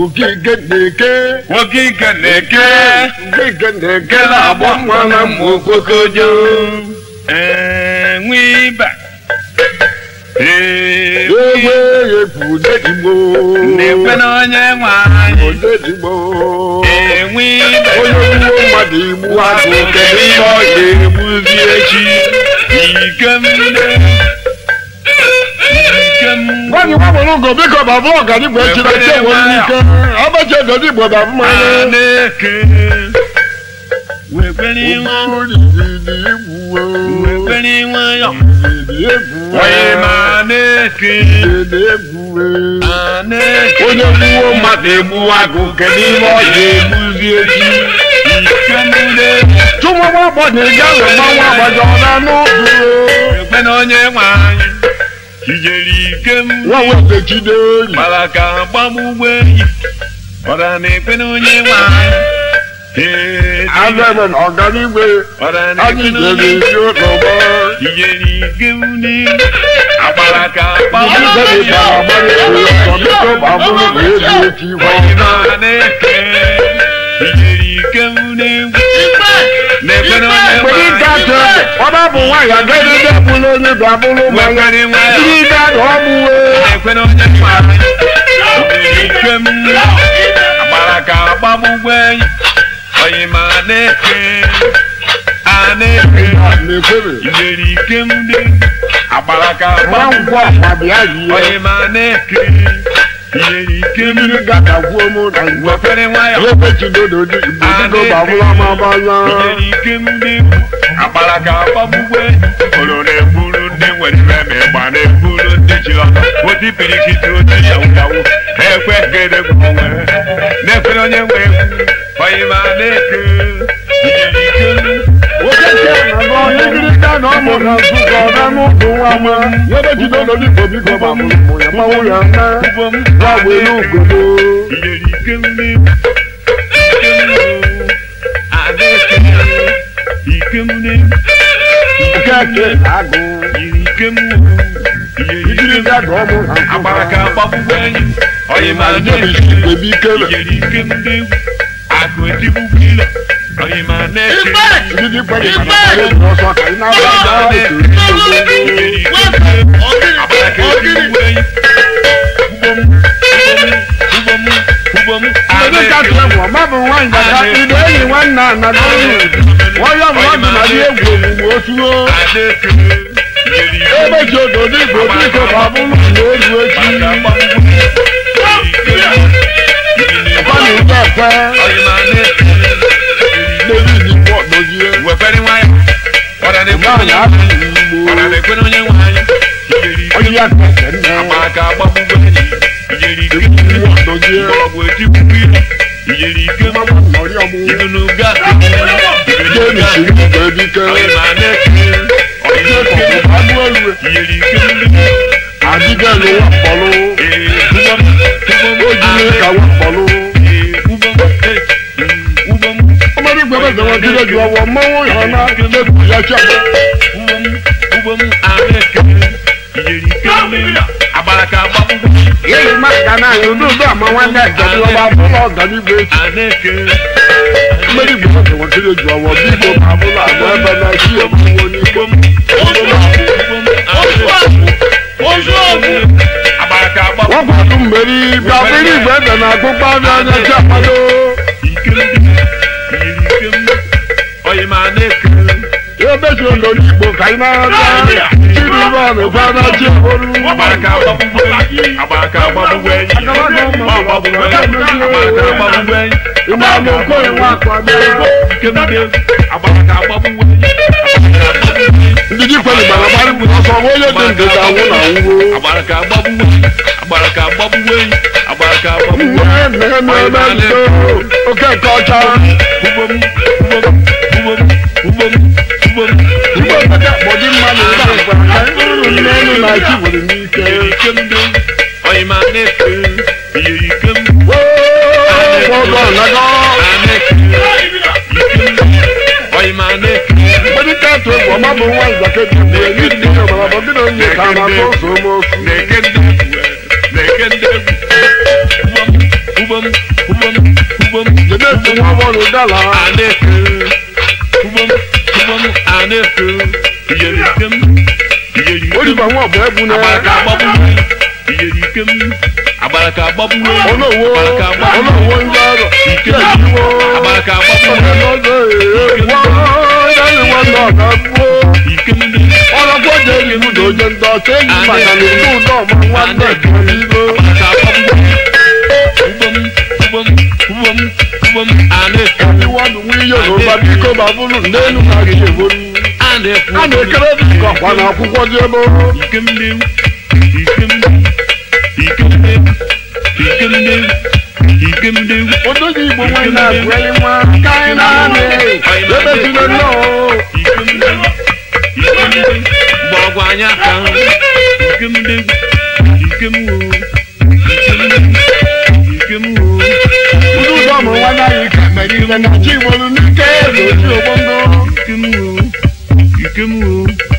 wofi geneke. wofi geneke. wofi geneke la bɔ mɔna mo kokojo. ɛɛ ŋui ba. Ewe yeku dedigbo. Nìpẹ́nà ọ̀nyẹ́ nwáyé. Odedigbo. Èwì bẹ̀rẹ̀. Olóòwò mmadụ igbu azụ kedu ihe ọ ga-egbuzi echi. Ike mmiri báyìí wọ́n mọ̀ lóko bí kò bàbá ọ̀gá nígbà ẹ̀jẹ̀ rẹ̀ jẹ́ wọ́n ní kẹ́ abẹ́jẹ́ ìdọ́jú ìbò bàbá máa ń wèpẹ́rẹ́ wọn wèpẹ́rẹ́ wọn yọ wọ́n máa ní kí onye gbuwo mmadụ egbuwa agụ nke n'ime ọ ga-egbuzi echi tụmọmọ gbọdọ ga-aghọ mmanwụ agbajọ n'anụ ọdụ ekpe na onye nwa ijeri ike mmiri mara ka gbamugbe yi ọra na-ekpe na onye nwanyị Adẹ́nà ọ̀gánígbé Adìjẹ́ni yóò tó bọ́. Ìyẹ̀rì gẹ́múni àpàrà ká pàmò. Ìdílé mi bá àmọ́ ní ìwé sọ̀mí tó bá múlò ní èdè etí wọn. Ìyìnbá nẹ́ẹ̀kẹ́ ìyẹ̀rì gẹ́múni. Ìgbẹ́ ìgbẹ́ ìgbẹ́ ìgbẹ́ ìgbẹ́ ìgbẹ́ ìgbẹ́ ìgbẹ́ ìgbẹ́ ìgbẹ́ ìgbẹ́ ìgbẹ́ mi bá múlò mọ́lá yí dáadọ́ mu o. ẹ̀pẹ́ ní ọjọ́ ìwà mi ìgbẹ́ mu àbàràkà àbámúgbẹ́ yìí ọ̀yìn máa nẹ́ẹ̀kẹ́ anẹ́ẹ̀kẹ́ ìlérí kémdé àbàràkà àbámúgbẹ́ ọ̀yìn máa nẹ́ẹ̀kẹ́ ìlérí kémdé. ìlérí dodo ìbòjú tó bàbá máa bá yá. ìlérí kémdé àbàràkà àbámúgbẹ́. ti birikiti o ti yawuyawu ẹgbẹ gẹdẹ gbọmọ nẹfẹlẹ ọnyẹ nwẹ fayima neke yiyike. o jẹ jẹ agbara ka agbapụgo anyị onye mara ijeri ndị egwu akụ etigbubu ile onye mara na-eche agbara ka etigbubu anyị mmadụ nwaanyị dada ịdị enyi nwanne a na n'olu nwayọọ mmadụ na ndị egwu omume otuo jodo ní ìgbòdì ìjọba múlùmí lóru etí. Báyìí ń bẹ̀ pẹ́. Lórí ní pọ̀ lójú ẹ. Ìwẹ̀ fẹ́ ní wáyà. Ọ̀dà ní pínlẹ̀ yà á fi ìlú. Ọ̀dà ní pínlẹ̀ yẹn wáyà. Ọyẹ àgbẹ̀fẹ̀ náà. Àmàkà àpá gbogbo ẹni. Ìyẹ̀rì ìgbẹ́ ìlú wọ̀ lójú ẹ. Ọ̀gbọ̀n etí kúkú yìí. Ìyẹ̀rì ìgbẹ́ máa wà lórí ọmọ. Ìdùnnú gáàsì. Ìdùnnú gáàsì. Ìdùnnú gáàsì. Àdìgẹ́ ló wà pọ̀lú. Ojúlé ka wà pọ̀lú. Ọmọdé gbẹ́bẹ́ sọ̀rọ̀ dídé jù ọwọ́ mọ́wó ìhànà lẹ́bi ìyájọ́. Yéèyí má kàná àyè olóògbé àmọ́ wọn ní ẹ̀jọ̀ ni wọ́n bá fún ọ̀gá nígbè mẹ́rin gbọ́dọ̀ tẹ̀wọ́ kí lè ju àwọn bí gbọ́ bàbá làwọn ẹ̀bẹ̀ náà sí ẹ̀mú wọn ní gbọ́mú. wọ́n bá tún mẹ́rí gbàgbérí ìgbẹ́ dáná gbogbo àmì ọ̀nà tí a pa ló. ọyẹ máa ní èkó. yóò bẹ́ẹ̀ lórí ìgbò kàyí náà náà ìdí bá mi fana jẹ́ olú. Àbàkà bá gbogbo ẹyin. Àbàkà bá gbogbo ẹyin. Má bá gbogbo ẹyin. Àbàkà bá gbogbo ẹyin. Ìmọ̀ àmọ̀ kọ́ ìwà àpàdé. Kéde àbàkà bá gbogbo ẹyin. Ndidi pẹ̀lú bàbá rẹ̀ kùtà sọ wọ́n yóò dé ndèdè àwọn àwúwo. Àbàkà bá gbogbo ẹyin. Àbàkà bá gbogbo ẹyin. Àbàkà bá gbogbo ẹyin. Mẹ́mẹ́mẹ́ ló ó kẹ́kọ̀ọ́ nenu na chi were n'ike oyima n'efu iye ike m ọgbọ nagọ oyima n'efu onye ka tụ egwu ọma bụ nwa nzake dị mgbe n'ihi ndị ọgbara bụ ndị na onye ka na atọ ụzọ ome ofu na-eke ndị egwu na-eke ndị egwu ubom ubom ubom jebe efu nwa bọọlụ dala a na-efu ubom ubom a na-efu iye ike m olùbọ̀ àwọn ọ̀bọ̀ ẹ̀bùn náà. àbàràkà bọ́bú wí ìyẹ̀rì ike mú àbàràkà bọ́bú wí olówó olówó ń lọ́rọ̀ ike mú wo àbàràkà bọ́bú wí wọ́n lẹ́nu wọn lọ ọ̀rọ̀ bó ike mú ọlọ́gbọ́n jẹ́ ìlú dòjé ń tọ́ sẹ́yìn pàtàkì ìlú náà máa wá náà kiri ló. àbàràkà bọ́bú wí kubom kubom kubom àná. àbí wọ́n lù wí yorùbá bí kò bá búlù nínú àgèjì ìbọn a na-ekere ọkwa na akwụkwọ dị ebe ụdịdị igbo nwanyị na-agweli nwa ka anyị na-anị ebezina nnọọ gbọgwụ anyị aka ụdị ụdọ ma nwa naghị ka mere ibe na chi nwere n'ike n'oji ogbongo que